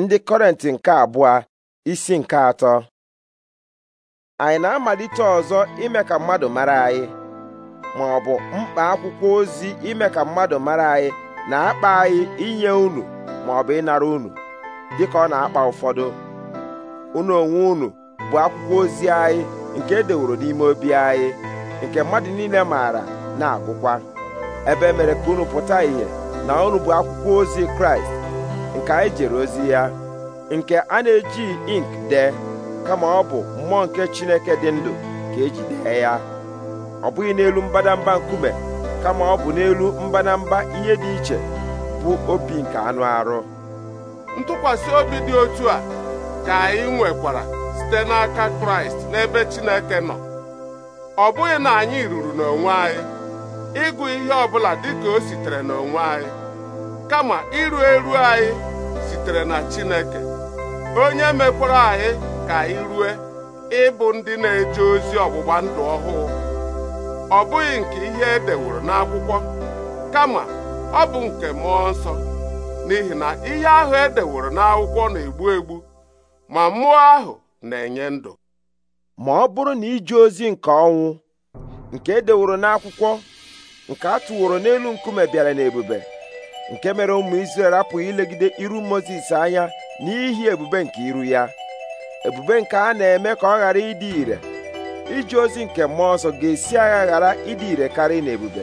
ndị kọrenti nke abụọ isi nke atọ anyị na-amalite ọzọ ime ka mmadụ mara anyị ma ọ bụ mkpa akwụkwọ ozi ime ka mmadụ mara anyị na-akpa anyị inye unu ma ọ bụ ịnara unu dịka ọ na-akpa ụfọdụ unu onwe unu bụ akwụkwọ ozi anyị nke edeworo n'ime obi anyị nke mmadụ niile maara na-agụkwa ebe e mere ka unu pụta ìhè na unu bụ akwụkwọ ozi Kraịst nke anyị jere ozi ya nke a na eji ink dee kama ọ bụ mmụọ nke Chineke dị ndụ ka eji dee ya ọ bụghị n'elu mbadamba nkume kama ọ bụ n'elu mbadamba ihe dị iche bụ obi nke anụ arụ ntụkwasị obi dị otu a ka anyị nwekwara site n'aka Kraịst n'ebe Chineke nọ ọ bụghị na anyị ruru n'onwe anyị ịgụ ihe ọ bụla ka o sitere n'onwe anyị kama iru eru anyị sitere na Chineke onye mekwara anyị ka anyị rue ịbụ ndị na-eje ozi ọgbụgba ndụ ọhụụ ọ bụghị nke ihe e deworo n'akwụkwọ kama ọ bụ nke mmụọ nsọ n'ihi na ihe ahụ e deworo n'akwụkwọ na-egbu egbu ma mmụọ ahụ na-enye ndụ ma ọ bụrụ na ije ozi nke ọnwụ nke e deworo n'akwụkwọ nke a tụworo n'elu nkume bịara n'ebube nke mere ụmụ Izrel apụghị ilegide iru Mozis anya n'ihi ebube nke iru ya ebube nke a na-eme ka ọ ghara ịdị ire ije ozi nke mmụọ nsọ ga-esi agha ghara ịdị ire karị na ebube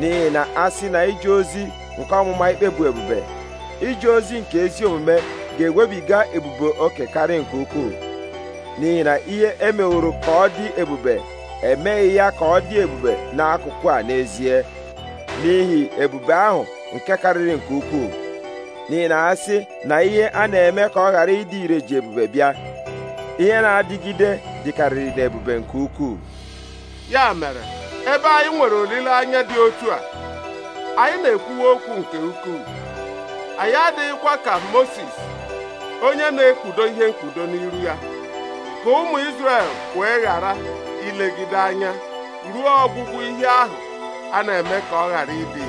n'ihi na a sị na ije ozi nke ọmụma ikpe bụ ebube ije ozi nke ezi omume ga-ewebiga ebube oke karị nke ukwuu n'ihi na ihe emeworo ka ọ dị ebube emeghị ya ka ọ dị ebube n'akụkụ a n'ezie n'ihi ebube ahụ nke karịrị nke ukwuu n'ihi na asị na ihe a na-eme ka ọ ghara ịdị ire ji ebube bịa ihe na-adịgide dịkarịrị na ebube nke ukwuu ya mere ebe anyị nwere olileanya dị otu a anyị na-ekwuwa okwu nke ukwuu anyị adịghịkwa ka Moses onye na ekwudo ihe mkpudo n'iru ya ka ụmụ Izrel wee ghara ilegide anya ruo ọgwụgwụ ihe ahụ a na-eme ka ọ ghara ịdị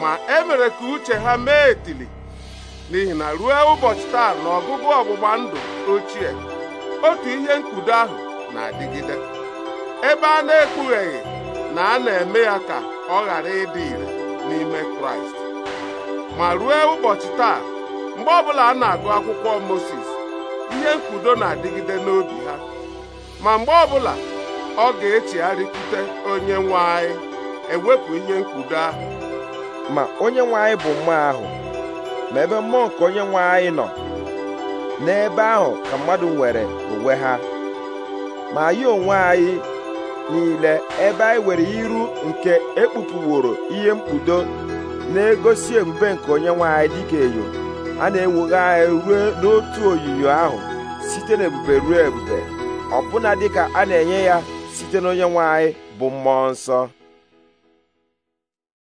ma e mere ka uche ha mee etili n'ihi na ruo ụbọchị taa na ọgụgụ ọgbụgba ndụ ochie otu ihe nkudo ahụ na-adịgide ebe a na-ekpugheghị na a na-eme ya ka ọ ghara ịdị ire n'ime kraịst ma ruo ụbọchị taa mgbe ọbụla a na-agụ akwụkwọ moses ihe nkudo na-adịgide n'obi ha ma mgbe ọbụla ọ ga-echegharịkwute onye nwe anyị ewepụ ihe nkudo ahụ ma onye nwe anyị bụ mmụọ ahụ ma ebe mmụọ nke onye nwe anyị nọ n'ebe ahụ ka mmadụ nwere onwe ha ma anyị onwe anyị niile ebe anyị nwere iru nke ekpupuworo ihe mkpudo na-egosi ebube nke onye nwe anyị dịka enyo a na-ewugha anyị ruo n'otu oyiyo ahụ site n'ebube ruo ebube ọbụna dịka a na-enye ya site n'onye nwe anyị bụ mmụọ nsọ